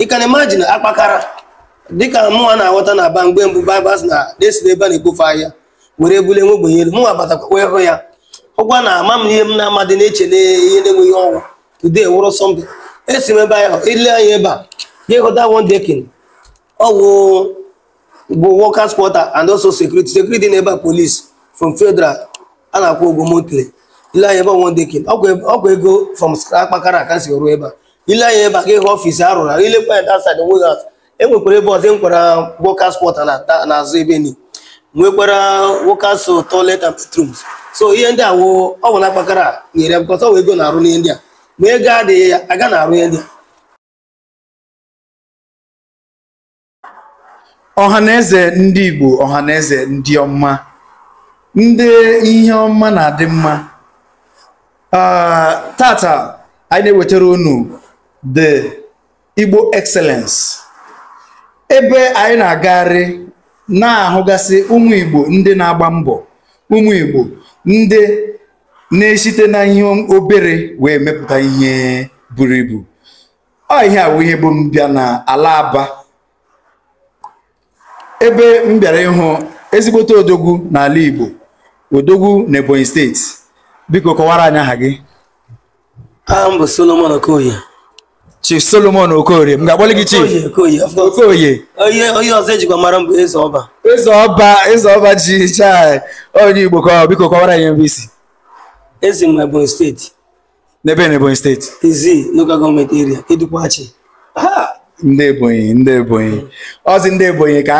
ị ka na-imajin akpakara dịka mụnwa na-aghọta na aba mgbe mbụ babas na desi ebe a na-ekpofu ahịa were bule nwe ogbenye mụnwa batakwa hụ ya hụkwa na ama m ihe m na-amadị na-eche na ihe na-enweghị ọnwụ today wụrụ sọmpi esi m ebe ahụ ile anya ebe a ga ịghọta won dekin ọgwụ bụ workers quarter and also security security na ebe a police from federal a na-akwụ ụgwọ monthly ile anya ebe won dekin ọkwa ego from akpakara ka si ruo ebe a ile anya ebe a ga ịhụ ọfisi a rụrụ ilekwa ya dasaịd nwe ha e nwekwara ebe ọzọ e nkwara wokas pọta n'azụ ebe ni nwekwara wokas toilet and bathrooms so ihe ndị a woo ọ nwụla kpakara nyere bụkọta ọwa ego na-arụ n'ihe ndị a ma ego adịghị ya aga na-arụ ihe ndị a ọhaneze ndị igbo ọhaneze ndị ọma ndị ihe ọma na-adị mma ah, tata anyị na-ewetara unu the Igbo excellence ebe anyị na-agagharị na-ahụgasị ụmụ Igbo ndị na-agba mbọ ụmụ Igbo ndị na-esite na ihe obere wee mepụta ihe buru ibu ọ ihe awụ ihe bụ mbịa na ala Aba ebe m bịara ịhụ ezigbote odogwu n'ala Igbo odogwu na Ebonyi steeti biko kọwara anyị aha gị aha Solomon Okoye Chief Solomon Okoye, m ga gị Chief Okoye onye ọzọ ejikwa mara m bụ eze ọba eze ọba eze ọba ji chai onye Igbo ka biko kọwara ya mbụ isi Eze m Ebonyi steeti n'ebe na Ebonyi steeti izi local gọọmenti eria edukwachi ndị ebonyi ndị ebonyi ọzi ndị ebonyi ka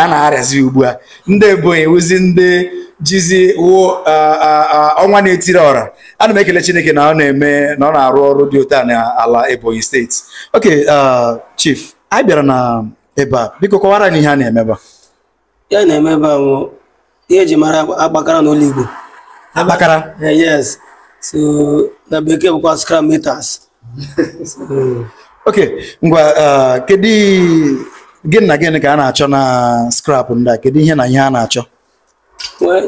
a na-arịazi ugbu a ndị ebonyi wụzi ndị jizi wụ ọnwa na-etiri ọra ana m ekele chineke na ọ na-eme na ọ na-arụ ọrụ dị otu a ala ebonyi steeti ok chief anyị bịara na ebe a biko kọwara anyị ihe a na-emeba eme ya na-eme ba a bụ ihe eji mara akpakara n'ụlọ igbo akpakara eh, yes so na bekee bụkwa scrum Ok, ngwa uh, kedu gị na gịnị ka a na-achọ na scrap ndị a kedu ihe na ihe a na-achọ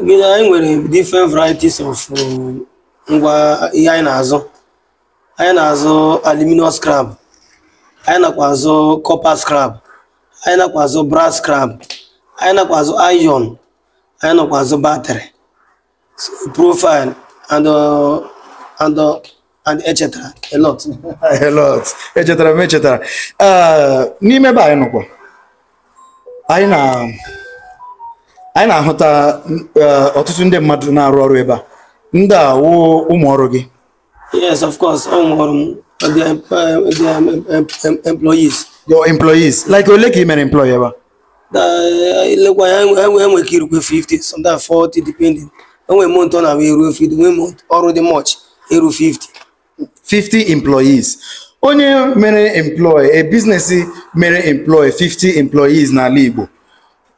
gịnị anyị nwere different varieties of um, ngwa ihe anyị na-azụ anyị na-azụ aluminum scrap anyị nakwa azụ copper scrap anyị nakwa azụ brass scrap anyị nakwa azụ iron anyị nakwa azụ batrị profile and uh, and uh, and echetara a lot a lot echetara m echetara uh, n'ime ebe anyị nọkwa anyị na anyị na-ahụta uh, ọtụtụ ndị mmadụ na-arụ ọrụ ebe a ndị a wụ ụmụ ọrụ gị yes of course ụmụ ọrụ m uh, the um, employees your employees like ole ka ị mere employee ebe a lekwa ya enwe ka irukwe 50 sometimes 40 depending enwe mont ọ na-abụ eruo 50 enwe mont ọrụ dị much eru 50 50 employees onye mere employ a business mere employ 50 employees n'ala Igbo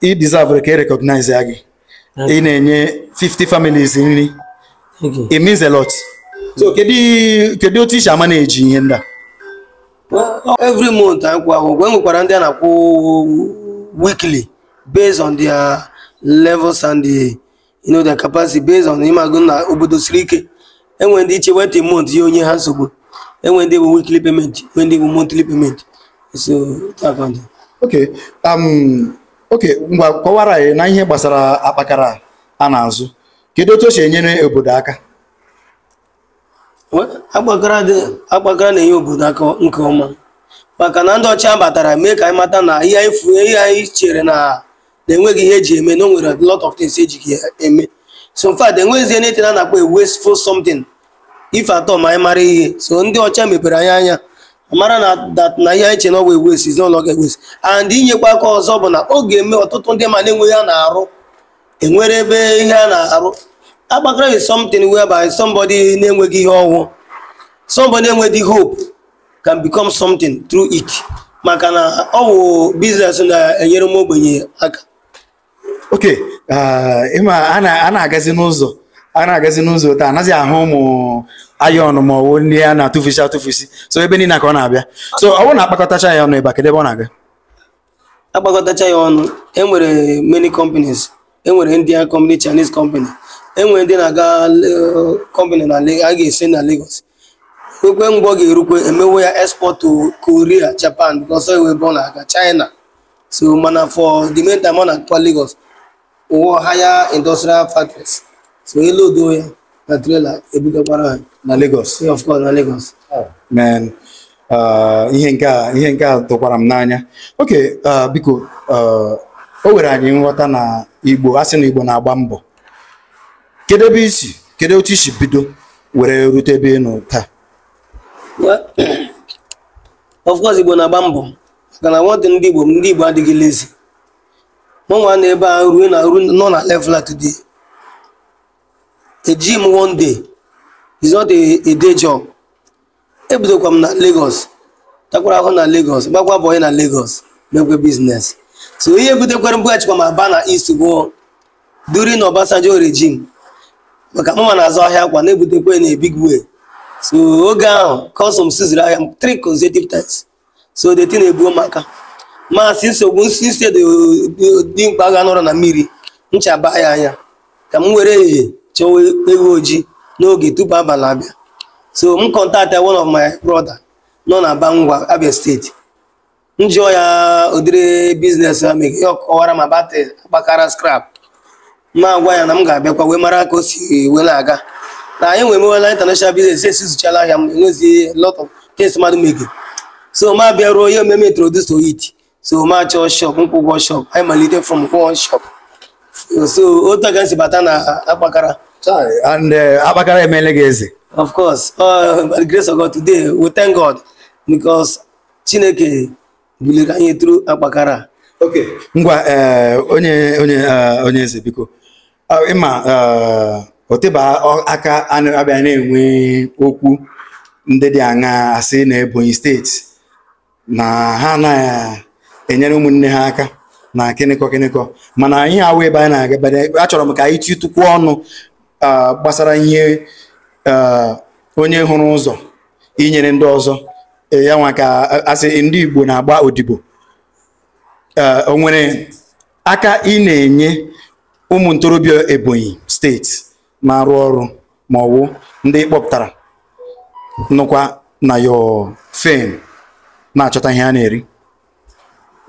ị deserve ka e recognize ya gị ị na-enye 50 families nri it means a lot so kedu otu isi amana eji ihe ndị a every month anyị kwụ ahụ mgbe nwekwara ndị a na-akwụ weekly based on their levels and the, you know, their capacity based on ịmagụ na obodo siri ike enwe ndị iche wetin mont ya onye ha nsogbu enwe ndị bụ weekly payment nwe ndị bụ monthly so okay um okay ngwa kọwara anyị na ihe gbasara akpakara a na-azụ kedu otu o si enyere obodo aka akpakara na-enye obodo aka nke ọma maka na ndị ọcha batara mee ka anyị mata na ihe anyị chere na na-enweghị ihe eji eme na o nwere lot of things eji eme so in fact enweghịzi anything a na-akpọ wasteful something if at all ma anyị mara ihe so ndị ọcha mepere anyị anya mara na that na ihe anyị che na ọwa ewesi ezinụlọ ga-ewesi and inyekwa aka ọzọ bụ na ọ ga-eme ọtụtụ ndị ma na-enweghị a na-arụ enwere ebe ihe a na-arụ agbakara is something whereby somebody na-enweghị ihe ọhụụ somebody enweghị hope can become something through it maka na ọ oh, wụ business na-enyere m ogbenye aka Ok, uh, ịma a na-agazi n'ụzọ a na-agazi n'ụzọ taa anaghị ahụ ụmụ ayọn ma ọwụ ndị a na-atụfusi atụfusi so ebe niile ka ọ na-abịa so ọ bụrụ na akpakọtacha ya ọnụ ebe a ebe ọ na-aga akpakọtacha ya ọnụ e nwere many companies enwere Indian company Chinese company enwere ndị na-aga uh, company na a ga-esi na Lagos kwekwe mgbe ọ ga-erukwe emewe ya export to Korea Japan because ọ na-aga China so mana for the time ọ na-akpa Lagos ụọ haya industrial factories so ele odo ya na trela ebugakwara ha na Lagos of course na Lagos oh. man uh, ihe nke a ihe nke a tụkwara m n'anya oke uh, biko uh, o were anyị nghọta na Igbo asị na Igbo na-agba mbọ kedu ebe isi kedu otu isi bido were rute ebe taa mbọ na mụnwa na ebe ahụ ruo na ruo nọ na level a today a gym one day is not a day job ebidokwa m na Lagos takwara ahụ na Lagos gbakwa bọyị na Lagos mekwe biznes so ihe butekwara mbughachikwa m aba na east bụ during Obasanjo regime maka mụnwa na-azụ ahịa akwa na-ebutekwa na ebig way so oge ahụ kọsọm siziri ahịa three consecutive times so the thing na-ebuo m aka maasị nsogbu nsị dimkpa ga nọrọ na mmiri nchaba ya anya ka m were ehihie chọwa ewu ojii n'oge tupu abalị abịa so m kọntaktị one of my brother nọ na Bangwa Abia steeti m jụọ ya ụdịrị biznes ya mere ya ma batị gbakara skrab ma agwa ya na m ga-abịakwa wee mara ka o si wee na-aga na anyị nwere mewela international business esizuchala ahịa m enwezighị lot of things mmadụ megere so ma bịa ruo ihe omeme introduce to it so machọ shop nkwụ shop anyị malite from one shop so otu aga nsi bata na akpakara and eh, akpakara emeela gị eze of course uh, the grace of God today we thank God because Chineke buliri anyị tru akpakara ok ngwa eh, onye onye eh, onye eze biko ah, ịma oteba aka abịa na-enwe okwu ndị dị aṅa asị na Ebonyi steeti na ha anaghị enyere ụmụnne ha aka na kịnịkọ kịnịkọ mana anyị awụ ebe anyị na-aga achọrọ m ka anyị ọnụ gbasara ihe onye hụrụ ụzọ inyere ndị ọzọ e, ya nwa asị ndị Igbo na-agba odibo onwere aka ị na-enye ụmụ ntorobịa Ebonyi steeti na-arụ ọrụ ma ọwụ ndị kpọpụtara nụkwa na yo fen na-achọta ihe a na-eri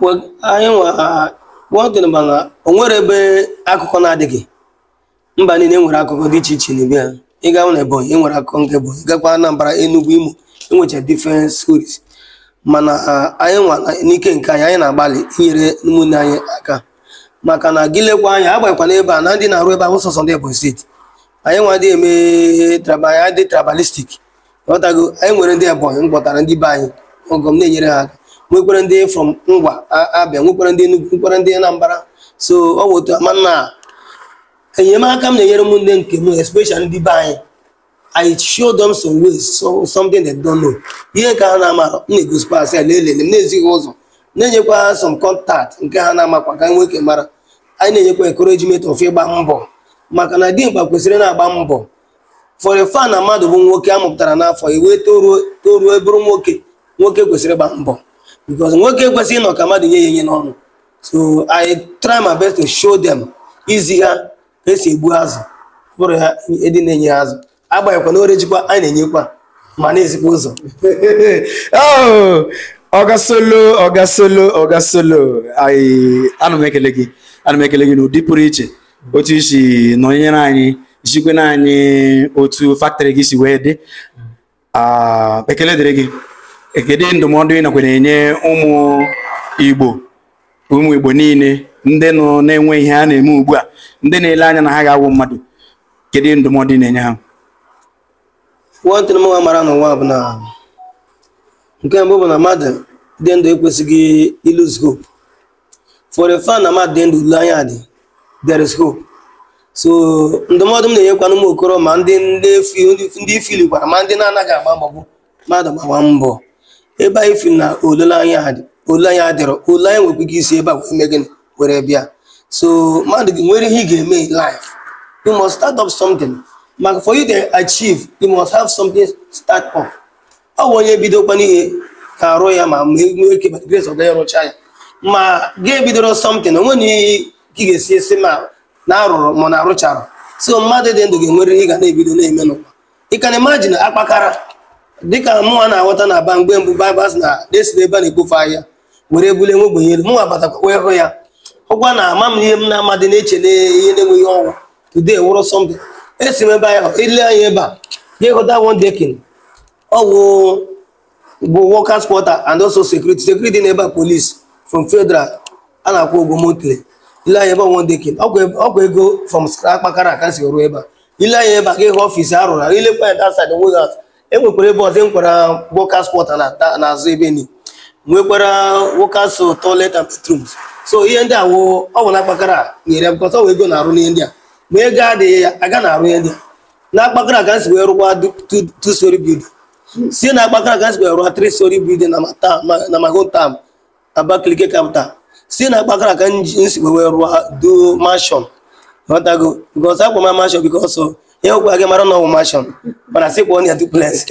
anyị gwa ọdịnaba o nwere ebe akụkọ na-adịghị mba niile nwere akụkọ dị iche iche n'ebe ha ị gawa na ebonyi enwere akụkọ nke ebonyi gakwa anambra enugwu imo enwecha different stories mana uh, anyị nwa n'ike nke anyị anyị na-agbalị inyere ụmụnne anyị aka maka na gị lekwa anya agbanyekwana ebe a na ndị na-arụ ebe ahụ sọsọ ndị ebonyi steeti anyị nwa dị eme anyị dị tribalistik ghọtago anyị nwere ndị ebonyi mkpọtara ndị be anyị ọgọ m na-enyere ha aka nwekwere ndị from Ngwa abịa nwekwere ndị Enugu nwekwere ndị Anambra so ọ bụ otu mana enyemaka m na-enyere m nne nke m especially ndị be anyị I show them some ways so something they don't know ihe nke ha na-amara m na-egosikwa asị lelele m na-ezighị ụzọ na-enyekwa ha some contact nke ha na-amakwa ka nwoke mara anyị na-enyekwa encouragement of ịgba mbọ maka na dimkpa kwesịrị na-agba mbọ for a fan na mmadụ bụ nwoke a mụpụtara n'afọ iwee e toruo toruo e bụrụ nwoke nwoke kwesịrị ịgba mbọ because nwoke ekwesịghị ịnọ ka mmadụ nye ya nye n'ọnụ so i try my best to show them izi ha esi egbu azụ bụrụ ya ịdị e na-enye azụ agbanyeghịkwa na orejikwa anyị na-enyekwa ma na-ezikwa ụzọ ọgasolo oh, ọgasolo ọgasolo ana ekele gị ana ekele gị n'ụdị pụrụ iche otu isi nọnyere anyị jikwe na anyị otu faktrị gị si wee dị ah, ekele dịrị gị kedu ndụmọdụ ị nakwa na-enye ụmụ igbo ụmụ igbo niile ndị nọ na-enwe ihe a na-eme ugbu a ndị na-ele anya na ha ga-awụ mmadụ kedu ndụmọdụ ị na-enye ha nwantịrị m nwa mara n'ụwa bụ na nke mbụ bụ na mmadụ dị ndụ ekwesịghị ilụz hope for a na mmadụ dị ndụ ule anya dị there is hope so ndụmọdụ m na-enyekwana ụmụ okoro ma ndị ndị ifilikwara ma ndị na-anaghị agba mgbagbo mmadụ gbagba mbọ ebe anyị fi na oleanya adịrọ ole anyị nwekwa ike isi ebe a wee mee gịnị were bịa so mmadụ gị nwere ihe ị ga-eme in life you must start up something maka for you to achieve you must have something start up ọ bụ onye bidokwa n'ihe ka arụ ya ma ma nwee ike rụchaa ya ma ga-ebidoro something onwe na ihe ka ị ga-esi esi ma na arụrụ ma na arụchara so mmadụ dị ndụ ga-enwere ihe ga na-ebido na-eme n'ụwa ị ka na imagine akpakara dịka mụnwa na-aghọta na aba mgbe mbụ baịbụl na desiri ebe a na-ekpofu ahịa were ebule nwe ogbenye mụnwa batakwa wee hụ ya hụkwa na ama m ihe m na-amadị na-eche na ihe na-enweghị ọnwụ today wụrụ sọmpi esi m ebe ahụ ile e anya ebe a ga ịhụta won dekin ọwụ bụ workers quarter and also security security na ebe a police from fedral a na-akwụ ụgwọ monthly ile anya ebe won dekin ọkwa ego fọm akpakara aka si ruo ebe a ile anya ebe a ga ịhụ ọfịs arụrụ ilekwa ya dasaid wozat e nwekwara ebe ọzọ e nwekwara workers quarter n'azụ ebe ni nwekwara workers toilet and bathrooms so ihe ndị a wo ọ bụ na akpakara nyere m kọta ego na-arụ n'ihe ndị a ma ego adịghị aga na-arụ ihe ndị a na akpakara ka nsi wee rụkwa two story building si na akpakara ka nsi wee rụwa three story building na my hometown Abakaliki capital si na akpakara ka nsi wee rụwa do mansion ghọtago because akpọ ma mansion because ihe ọgwụ gị mara na ọwụ mashọn mana sị kpọọ ya duplex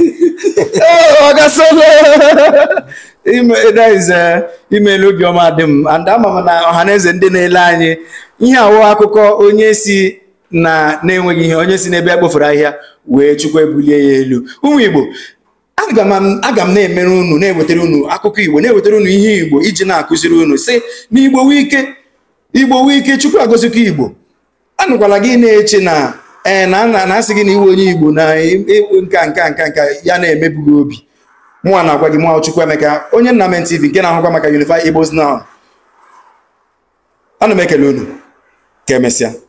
imelu gị dị m and m na ọha na ndị na-ele anyị ihe awụ akụkọ onye si na na-enweghị ihe onye si n'ebe a ahịa wee chukwu ebulie ya elu ụmụ igbo aga m na-emere unu na-ewetara unu akụkọ igbo na-ewetara unu ihe igbo iji na-akụziri unu si na igbo wike igbo wike chukwu agozikwa igbo anụkwala gị na-eche na ee na nna na-asị gị na iwe onye igbo na nka nka nka nka ya na emebughi obi mwa na-agwa gị mụnwa emeka onye Nnamen TV nke na-ahụkwa maka Unify Igbos na ana m ekele unu ka emesịa